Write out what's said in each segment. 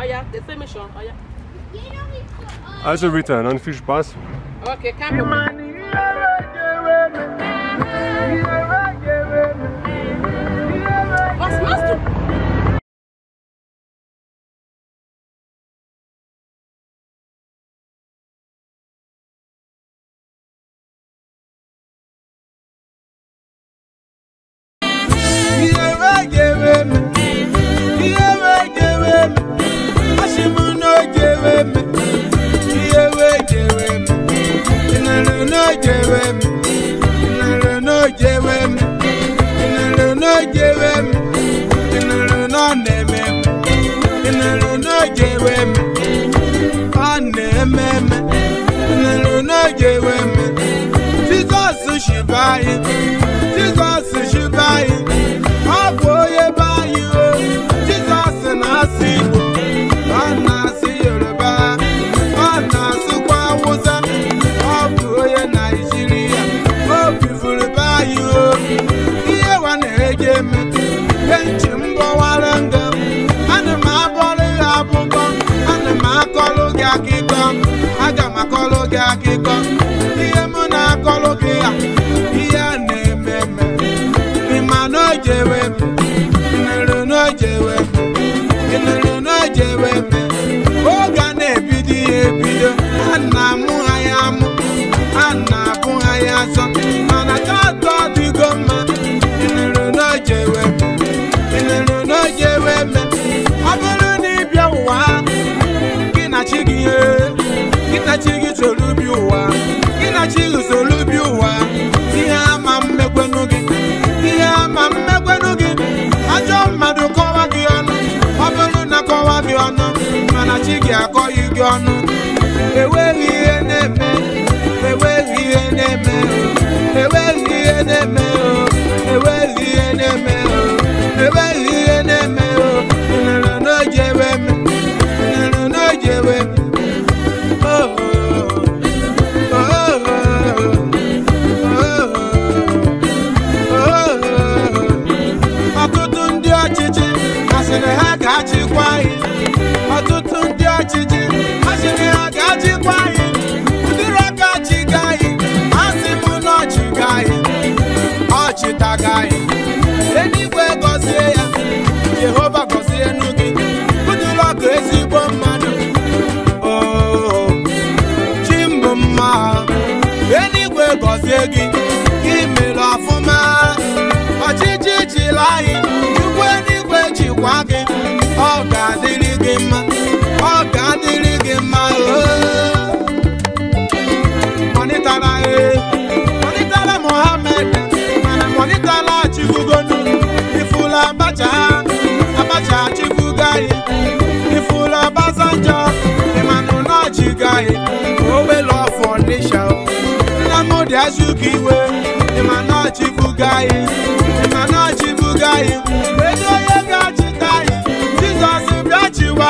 Oh ja, das sehen wir schon. Ah also Rita, dann viel Spaß. Okay, kein Problem. n'eme ịnụrụ n'oge ewe m ọ na-eme eme ịnụrụ n'oge ewe m jizọs shiba yoruba ọ na-asụkwa awụsa ọ bụ onye naijiria o bifuru be anyị o akọwara ndụ m ana m abụrụ gị abụkọ ana m akọlụ gị akịkọ aga m akọlụ gị akịkọ ihe m na-akọlụ gị ya ihe a na-eme eme ịma na o m guzo bi ụwa ihe ama mmekwenụ gị ihe ama mmekwenụ gị ajọ mmadụ kọwa gị ọnụ ọ bụrụ na kọwa gị ọnụ mana chi gị akọghị gị ọnụ enweghị ihe na-eme enweghị ihe na-eme enweghị ihe na-eme enweghị ihe na-eme enweghị ihe sịrị ha ga-achịkwa anyị ọtụtụ ndị ọchịchị ha sịrị ha ga-achịkwa anyị ụdịrị aka achịga anyị asị m na ọchịga anyị ọchịtaga anyị eluigwe gọzie ya Jehova gọzie nu gị ụdịrị ọkụ ezigbo mmadụ oo oh, mbụ mma eluigwe gọzie gị nwa gị ọ ga-adịrị gị mma ọ ga-adịrị gị mma mọnịtara ee mọnịtara Mohammed mana mọnịtara achịbugonu ifula abacha abacha achịbugo anyị ifula Obasanjo ịmanụ na achịgo anyị owelu ọfọ nisha Nnamdi Azikiwe ịmanụ achịbugo anyị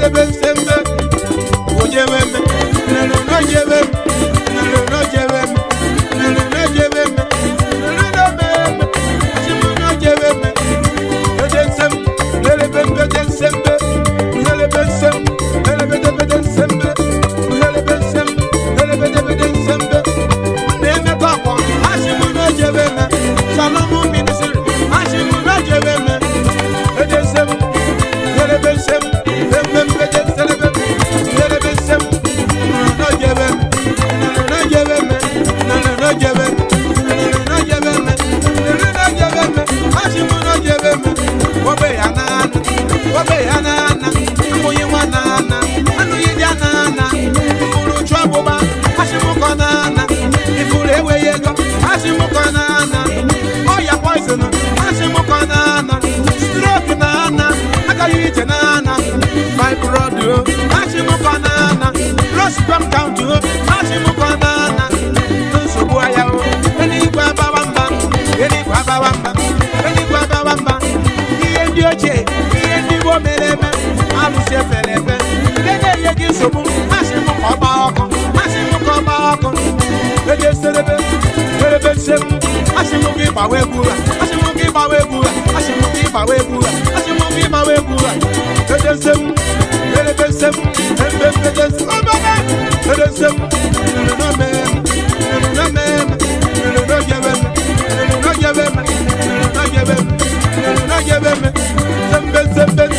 The best. ochie owó mẹlẹmẹ alùsẹ fẹlẹfẹ kéde yegi sòmù má ṣe mú kọ bá ọkọ má ṣe mú kọ bá ọkọ kéde sẹlẹbẹ fẹlẹfẹ sẹmú má ṣe mú kí bàwẹ búra má ṣe mú kí bàwẹ búra má ṣe mú kí bàwẹ búra má ṣe mú kí na. búra kéde sẹmú fẹlẹfẹ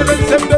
Seven, seven.